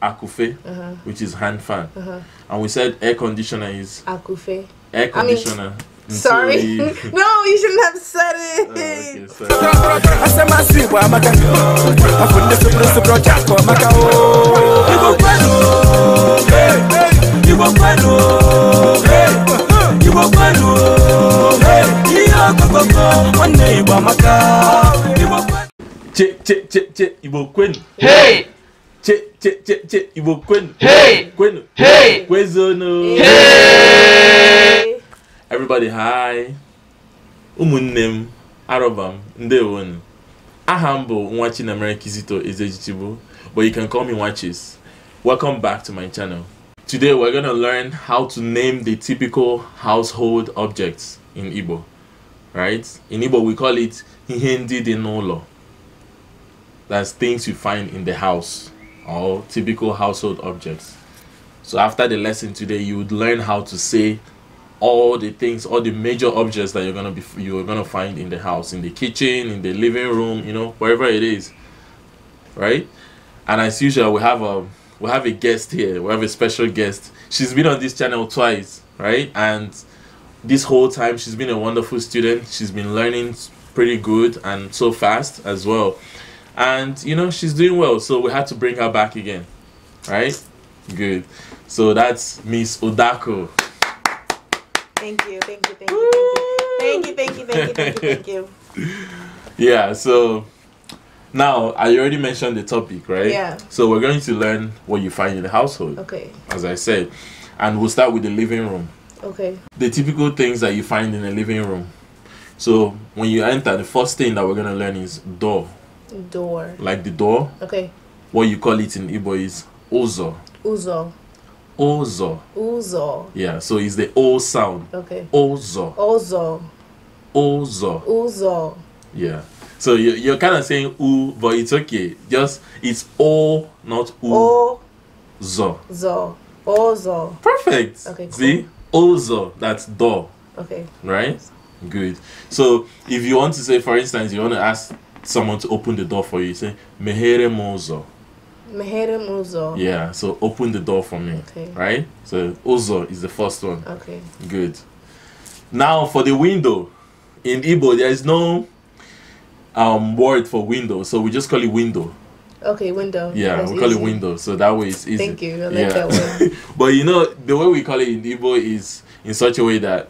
akufe, uh-huh. which is hand fan, uh-huh. and we said air conditioner is akufe. Air conditioner. I mean, Sorry. no, you shouldn't have said it. Oh, che, che, che, che, Ibo Quinn. Hey! Hey, kwenu kwenu everybody hi ụmụnne m arọba m ndewo nu aha Kizito Ezejichigbo but you can call me Watches. welcome back to my channel today we're gonna learn how to name the typical household objects in Igbo right in Igbo we call it ihe ndị nolo. that's things you find in the house or typical household objects. So after the lesson today, you would learn how to say all the things, all the major objects that you're gonna be you're gonna find in the house, in the kitchen, in the living room, you know, wherever it is, right? And as usual, we have a we have a guest here. We have a special guest. She's been on this channel twice, right? And this whole time, she's been a wonderful student. She's been learning pretty good and so fast as well and you know she's doing well so we had to bring her back again right good so that's miss odako thank you thank you thank you thank you thank you thank you thank you thank you, thank you. yeah so now i already mentioned the topic right yeah so we're going to learn what you find in the household okay as i said and we'll start with the living room okay the typical things that you find in the living room so when you enter the first thing that we're going to learn is door Door. Like the door. Okay. What you call it in Igbo is ozo. Ozo. Ozo. Ozo. Yeah, so it's the O sound. Okay. Ozo. Ozo. Ozo. Ozo. Yeah. So you, you're kind of saying u, but it's okay. Just it's O, not oo. O. Zo. Zo. Ozo. Perfect. Okay. Cool. See? Ozo. That's door. Okay. Right? Good. So if you want to say, for instance, you want to ask someone to open the door for you. say, Mehere Mozo. Mehere Mozo. Yeah, so open the door for me. Okay. Right? So Ozo is the first one. Okay. Good. Now for the window. In Igbo, there is no um, word for window, so we just call it window. Okay, window. Yeah, That's we call easy. it window, so that way it's easy. Thank you. I like yeah. that one. but you know, the way we call it in Igbo is in such a way that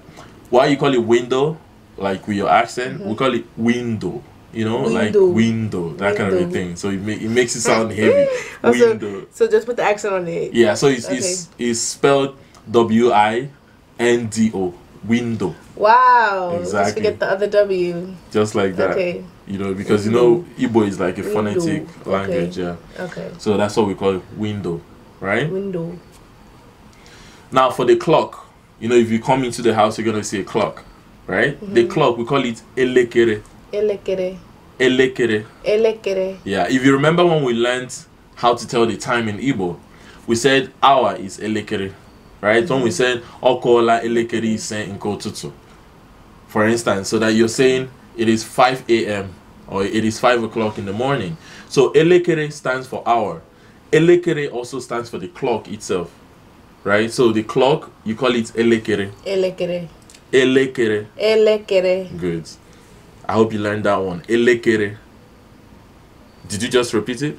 why you call it window, like with your accent, mm -hmm. we call it window you know, window. like window, that window. kind of a thing. So it, make, it makes it sound heavy. oh, window. So, so, just put the accent on it. Yeah, so it's okay. it's, it's spelled W I N D O window. Wow. Exactly. Let's forget the other W. Just like that. Okay. You know, because you know Igbo is like a window. phonetic okay. language, yeah. Okay. So that's what we call it, window, right? Window. Now for the clock, you know, if you come into the house, you're gonna see a clock, right? Mm-hmm. The clock we call it elekere. Elekere. Elekere. Elekere. Yeah, if you remember when we learned how to tell the time in Igbo, we said hour is elekere, right? Mm -hmm. When we said okola elekere in nkotutu, for instance, so that you're saying it is 5 a.m. or it is 5 o'clock in the morning. So elekere stands for hour. Elekere also stands for the clock itself, right? So the clock, you call it elekere. Elekere. Elekere. Elekere. Good. I hope you learned that one. Elekere. Did you just repeat it?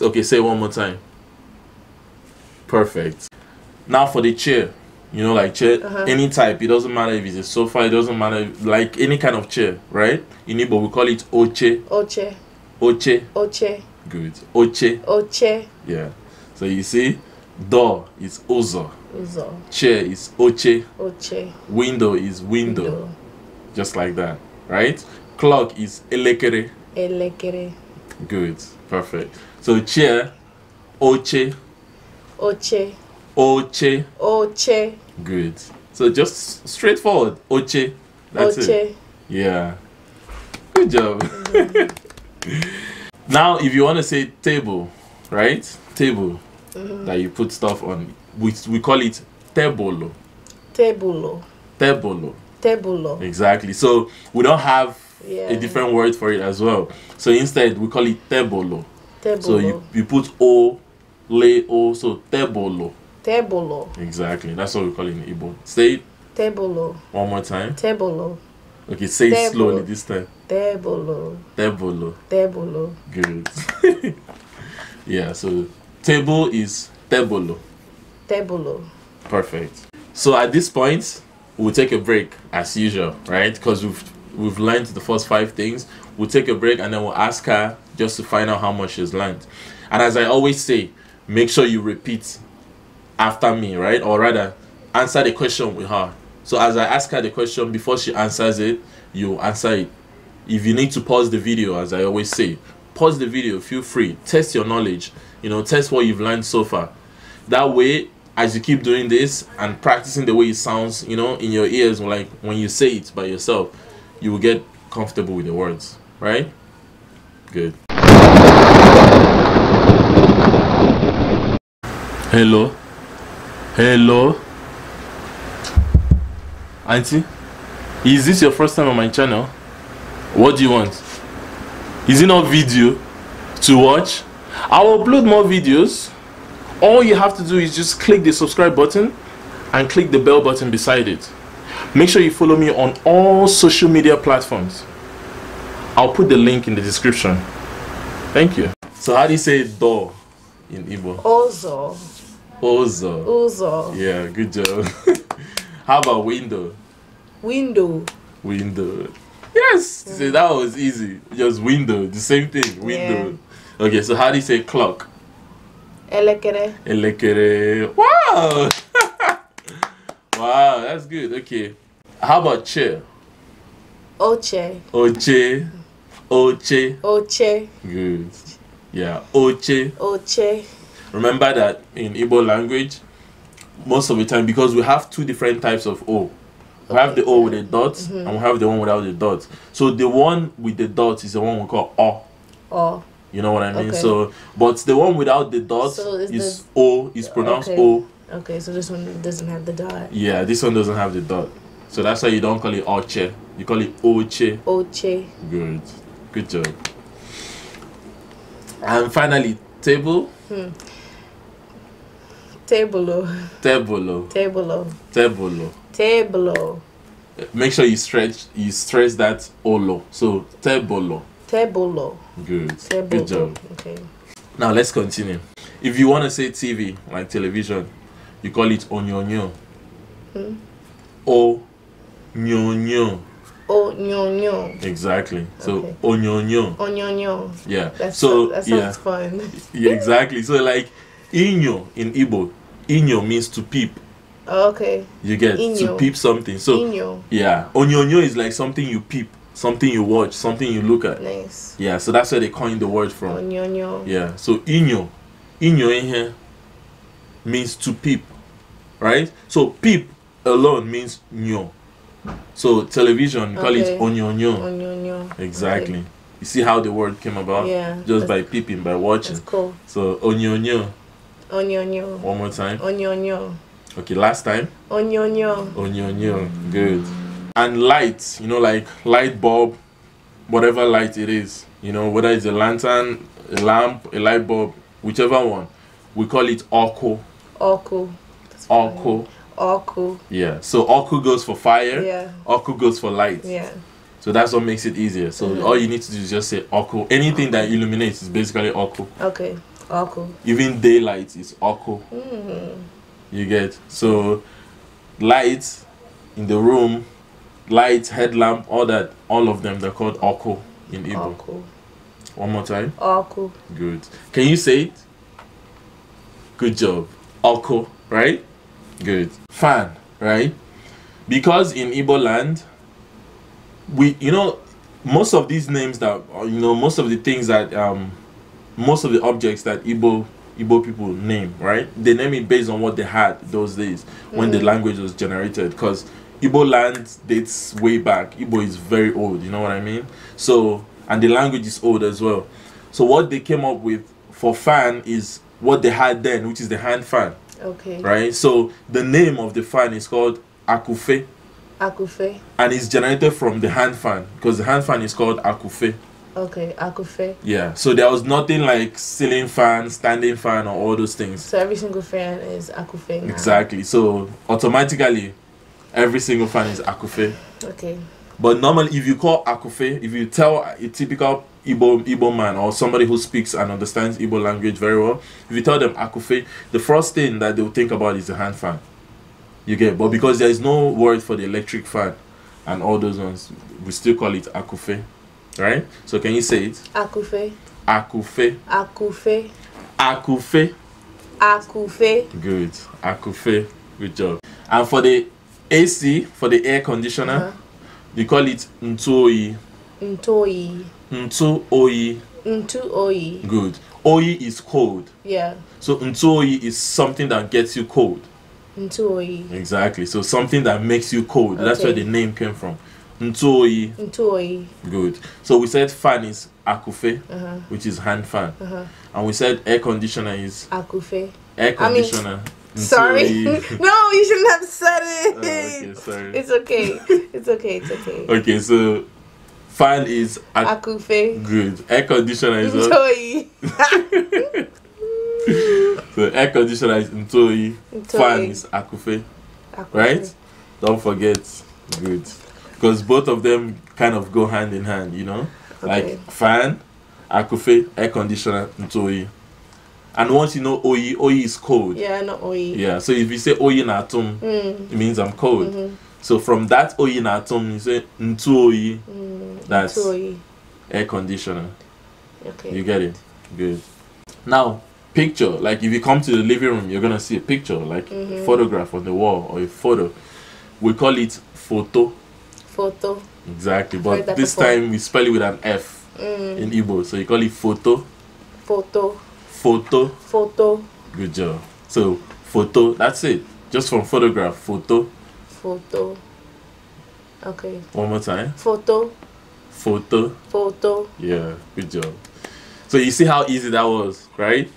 Okay, say it one more time. Perfect. Now for the chair. You know, like chair, uh -huh. any type. It doesn't matter if it's a sofa, it doesn't matter, if, like any kind of chair, right? In Igbo, we call it oche. Oche. Oche. Oche. Good. Oche. Oche. Yeah. So you see, door is ozo. Ozo. Chair is oche. Oche. Window is window. window. Just like that right? Clock is elekere. Elekere. Good, perfect. So chair, oche. Oche. Oche. Oche. Good. So just straightforward, oche. That's oche. it. Yeah. Good job. Mm -hmm. now, if you want to say table, right? Table mm -hmm. that you put stuff on, we, we call it tebolo. Tebolo. Tebolo. Tebulo. Exactly. So we don't have yeah. a different word for it as well. So instead, we call it tebolo. So you, you put O, le O, so tebolo. Tebolo. Exactly. That's what we call it in Igbo. Say it. Tebolo. One more time. Tebolo. Okay, say tebolo. it slowly this time. Tebolo. Tebolo. Tebolo. Good. yeah, so table is tebolo. Tebolo. Perfect. So at this point, We'll take a break as usual, right? Because we've we've learned the first five things. We'll take a break and then we'll ask her just to find out how much she's learned. And as I always say, make sure you repeat after me, right? Or rather, answer the question with her. So as I ask her the question before she answers it, you answer it. If you need to pause the video, as I always say, pause the video, feel free, test your knowledge, you know, test what you've learned so far. That way as you keep doing this and practicing the way it sounds, you know, in your ears, like when you say it by yourself, you will get comfortable with the words, right? Good. Hello. Hello. Auntie, is this your first time on my channel? What do you want? Is it not video to watch? I will upload more videos all you have to do is just click the subscribe button and click the bell button beside it make sure you follow me on all social media platforms I'll put the link in the description thank you so how do you say door in Igbo? Ozo Ozo Ozo yeah good job how about window window window yes so that was easy just window the same thing window yeah. okay so how do you say clock Elekere. Elekere. Wow! wow, that's good. Okay. How about chair? Oche. Oche. Oche. Oche. Good. Yeah, oche. Oche. Remember that in Igbo language, most of the time, because we have two different types of O. We okay. have the O with the dot, mm -hmm. and we have the one without the dot. So the one with the dot is the one we call O. O. You know what I mean? Okay. So, but the one without the dot so is, is the, O, is pronounced okay. O. Okay, so this one doesn't have the dot. Yeah, this one doesn't have the dot. So that's why you don't call it Oche. You call it Oche. Oche. Good. Good job. And finally, table. Hmm. Tebolo. Tebolo. Tebolo. Tebolo. Make sure you stretch you stress that olo. So tebolo law. Good. Table Good job. Okay. Now let's continue. If you want to say TV, like television, you call it onyonyo. Hmm? O nyonyo. Onyonyo. Exactly. So okay. onyonyo. Onyonyo. Yeah. That's so that sounds yeah. fun. yeah, exactly. So like inyo in Igbo, inyo means to peep. okay. You get inyo. to peep something. So inyo. yeah, onyonyo is like something you peep something you watch, something you look at. Nice. Yeah, so that's where they coined the word from. Onyonyo. Yeah, so inyo, inyo in here means to peep, right? So peep alone means nyo. So television, okay. call it onyonyo. Onyonyo. Exactly. Okay. You see how the word came about? Yeah. Just by peeping, by watching. That's cool. So onyonyo. Onyonyo. One more time. Onyonyo. Okay, last time. Onyonyo. Onyonyo. Good and lights, you know like light bulb whatever light it is you know whether it's a lantern a lamp a light bulb whichever one we call it orco orco orco orco yeah so orco goes for fire yeah orco goes for light yeah so that's what makes it easier so mm -hmm. all you need to do is just say orco anything that illuminates is basically orco okay orco even daylight is orco mm -hmm. you get so light in the room lights, headlamp, all that, all of them, they're called oko in Igbo. Oko. One more time. Oko. Good. Can you say it? Good job. Oko, right? Good. Fan, right? Because in Igbo land, we, you know, most of these names that, uh, you know, most of the things that, um, most of the objects that Igbo Igbo people name, right? They name it based on what they had those days when mm. the language was generated. Because Ibo land dates way back. Ibo is very old, you know what I mean? So, and the language is old as well. So, what they came up with for fan is what they had then, which is the hand fan. Okay. Right? So, the name of the fan is called Akufe. Akufe. And it's generated from the hand fan because the hand fan is called Akufe. Okay, Akufe. Yeah, so there was nothing like ceiling fan, standing fan, or all those things. So every single fan is Akufe. Now. Exactly. So automatically, every single fan is Akufe. Okay. But normally, if you call Akufe, if you tell a typical Ibo Igbo man or somebody who speaks and understands Ibo language very well, if you tell them Akufe, the first thing that they'll think about is the hand fan. You get, but because there is no word for the electric fan and all those ones, we still call it Akufe, right? So can you say it? Akufe. Akufe. Akufe. Akufe. Akufe. Good. Akufe. Good job. And for the AC for the air conditioner. Uh -huh. They call it Ntoi. Ntoi. Ntoi. Ntoi. Good. Oi is cold. Yeah. So Ntoi is something that gets you cold. Ntoi. Exactly. So something that makes you cold. Okay. That's where the name came from. Ntoi. Ntoi. Good. So we said fan is akufe, uh -huh. which is hand fan. Uh -huh. And we said air conditioner is akufe. Air conditioner. I mean, sorry. no, you shouldn't have said it. Oh, okay, sorry. It's okay. It's okay. It's okay. okay, so fan is ac- Akufe. Good. Air conditioner is Ntoyi. so air conditioner is Ntoyi. Fan is Akufe. Akufe. Right? Don't forget. Good. Because both of them kind of go hand in hand, you know? Okay. Like fan, Akufe, air conditioner, Ntoyi. And once you know oe oe is cold. Yeah, not oe. Yeah, so if you say oyi natum, mm. it means I'm cold. Mm-hmm. So from that oyi natum, you say ntu oe. Mm, That's air conditioner. Okay. You get it? Good. Now, picture. Like if you come to the living room, you're gonna see a picture, like mm-hmm. a photograph on the wall or a photo. We call it photo. Photo. Exactly, but this before. time we spell it with an F mm. in Igbo, so you call it photo. Photo Photo. Photo. Good job. So photo. That's it. Just from photograph. Photo. Photo. Okay. One more time. Photo. Photo. Photo. Yeah. Good job. So you see how easy that was, right?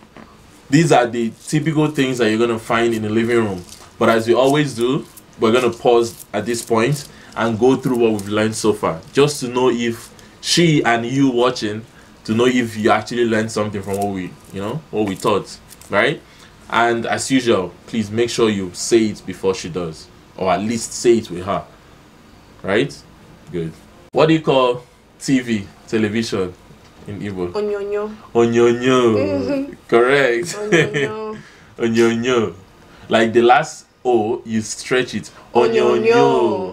These are the typical things that you're gonna find in the living room. But as we always do, we're gonna pause at this point and go through what we've learned so far, just to know if she and you watching to know if you actually learned something from what we, you know, what we taught, right? And as usual, please make sure you say it before she does, or at least say it with her, right? Good. What do you call TV, television in Igbo? Onyonyo. Onyonyo. Correct. Onyonyo. Onyonyo. Like the last O, you stretch it. Onyonyo.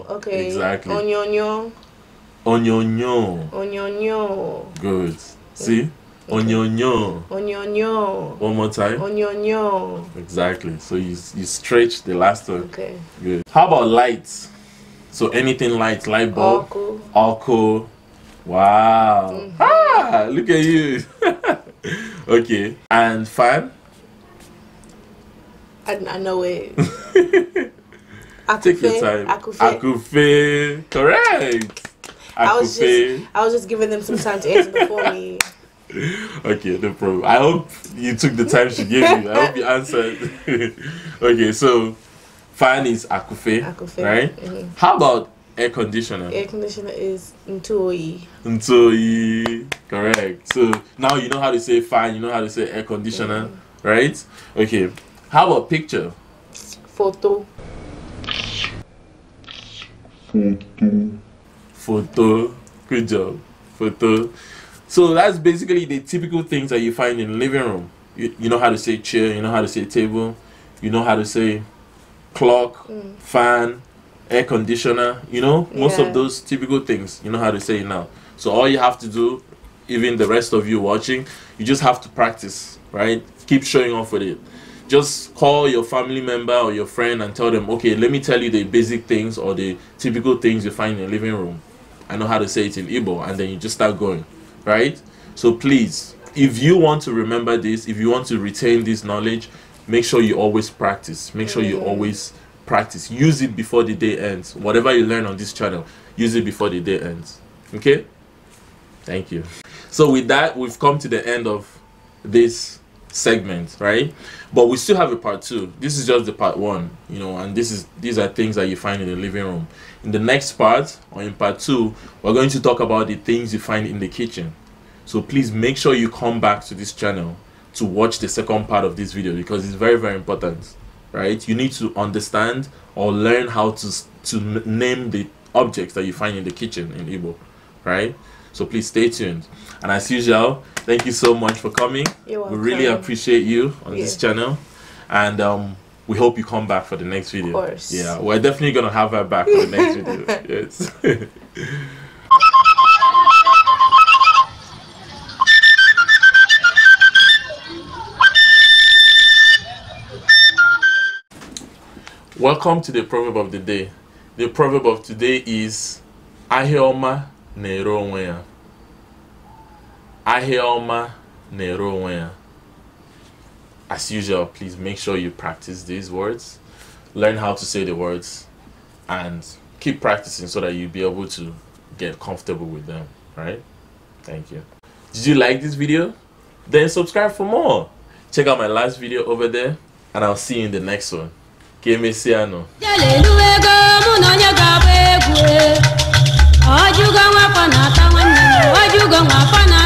Onyonyo. Okay. Exactly. Onyonyo. Onyonyo. Onyonyo. Good. See? Onyonyo. Onyonyo. One more time. Onyonyo. Exactly. So you, you stretch the last one. Okay. Good. How about lights? So anything lights, light bulb, alco. Wow. Mm -hmm. Ah, look at you. okay. And fan? I, I know it. Take your time. Akufe. Akufe. Correct. I, was just I was just giving them some time to answer before me. Okay, no problem. I hope you took the time she gave you. I hope you answered. okay, so fan is akufe, akufe. right? Mm-hmm. How about air conditioner? Air conditioner is ntoi. Ntoi, correct. So now you know how to say fan. You know how to say air conditioner, mm-hmm. right? Okay. How about picture? Photo. Photo photo. Good job, photo. So that's basically the typical things that you find in living room. You, you know how to say chair, you know how to say table, you know how to say clock, mm. fan, air conditioner, you know, most yeah. of those typical things. You know how to say now. So all you have to do, even the rest of you watching, you just have to practice, right? Keep showing off with it. Just call your family member or your friend and tell them, okay, let me tell you the basic things or the typical things you find in a living room I know how to say it in Igbo, and then you just start going, right? So please, if you want to remember this, if you want to retain this knowledge, make sure you always practice. Make sure you mm. always practice. Use it before the day ends. Whatever you learn on this channel, use it before the day ends. Okay? Thank you. So with that, we've come to the end of this segment, right? But we still have a part two. This is just the part one, you know, and this is these are things that you find in the living room. In the next part or in part two, we're going to talk about the things you find in the kitchen. So please make sure you come back to this channel to watch the second part of this video because it's very very important, right? You need to understand or learn how to to name the objects that you find in the kitchen in Igbo, right? So please stay tuned. And as usual, thank you so much for coming. We really appreciate you on yeah. this channel. And um, we hope you come back for the next video. Of course. Yeah, we're definitely going to have her back for the next video. Yes. Welcome to the proverb of the day. The proverb of today is Ahioma na-ere onwe ya ahịa ọma na-ere onwe ya as usual please make sure you practice these words learn how to say the words and keep practicing so that you'll be able to get comfortable with them right thank you did you like this video then subscribe for more check out my last video over there and i'll see you in the next one ka fana ta wannan wajugan wa fana